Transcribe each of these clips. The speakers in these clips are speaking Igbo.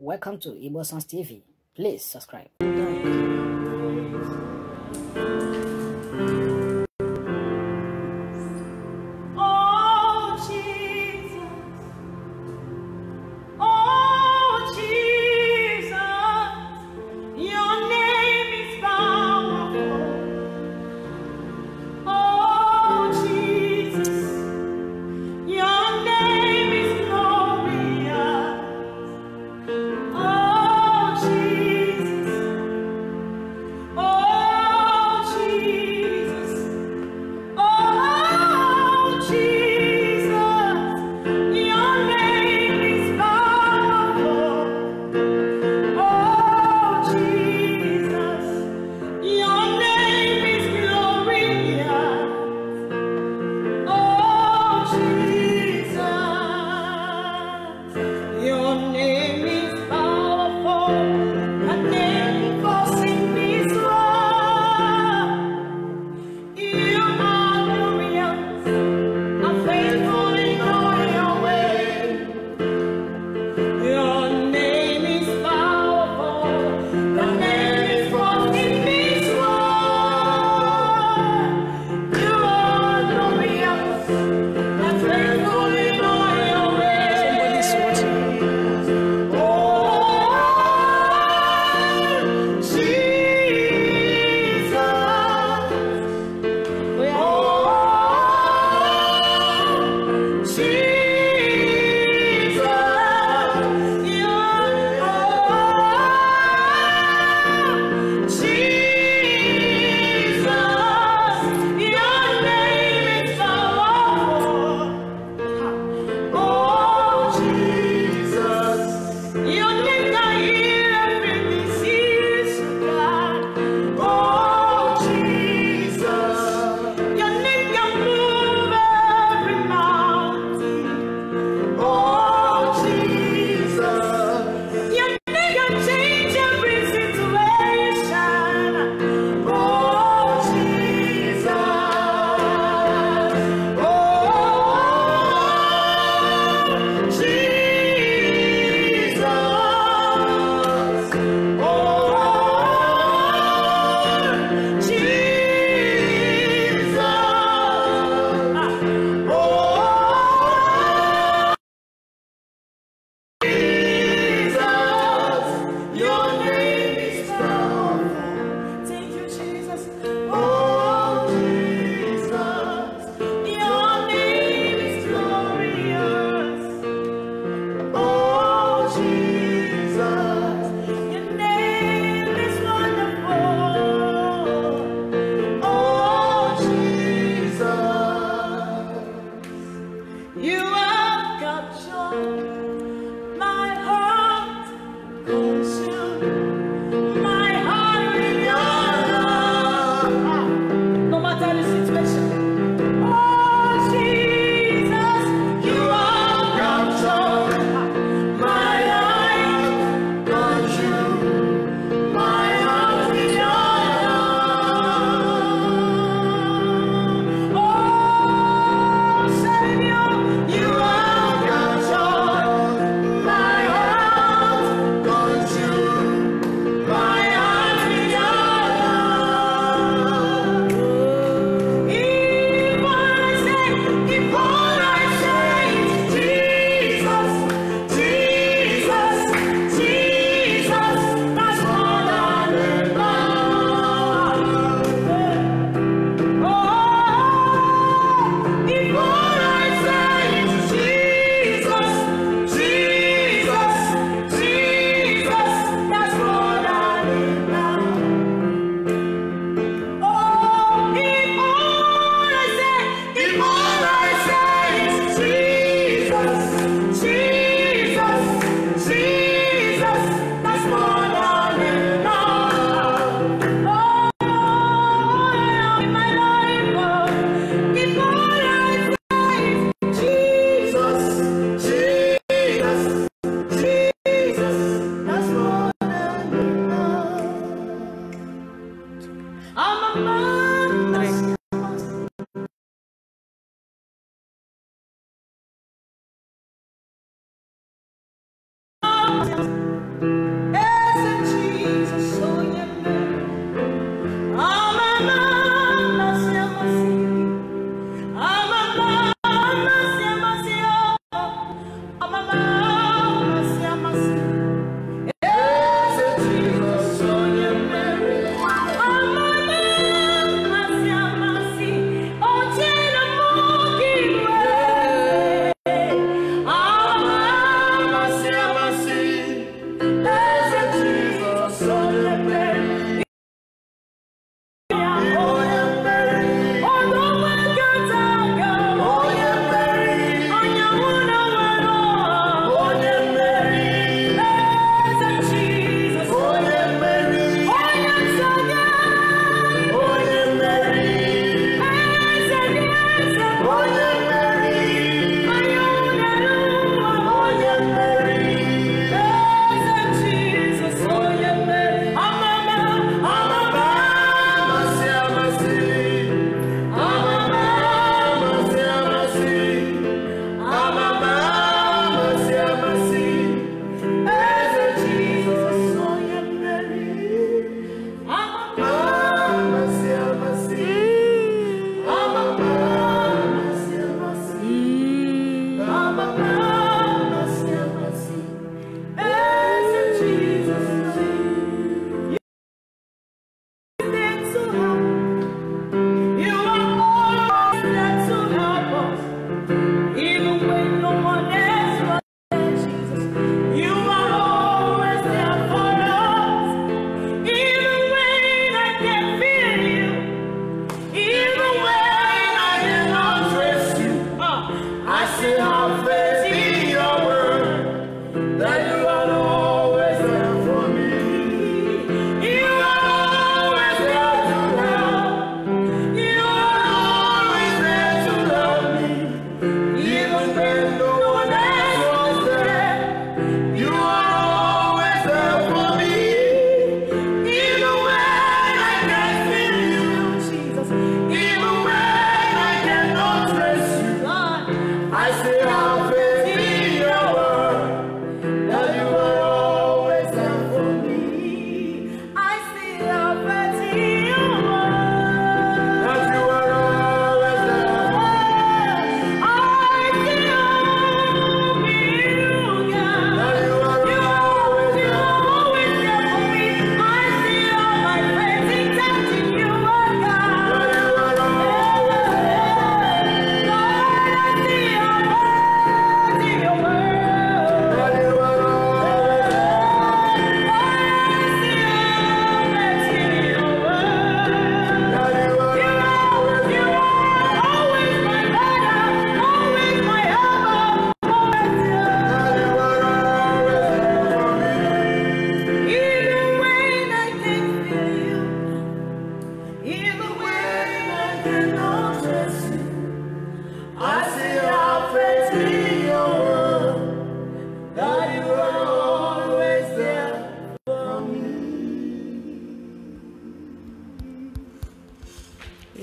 Welcome to Igbo TV. Please subscribe. thank you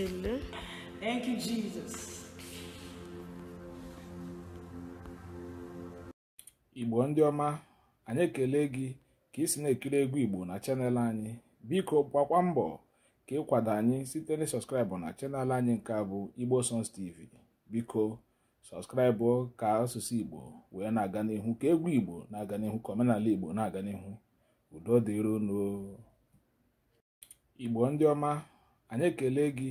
ele Thank you, Jesus. Igbo ndị ọma anyị ekele gị ka isi si na-ekiri egwu Igbo na chanel anyị biko gbakwa mbọ ka ịkwado anyị site na sọskraịbụ na chanel anyị nke bụ Igbo Sons TV biko sọskraịbụ ka asụsụ Igbo wee na-aga n'ihu ka egwu Igbo na-aga n'ihu ka omenala Igbo na-aga n'ihu udo Igbo ndị ọma anyị ekele gị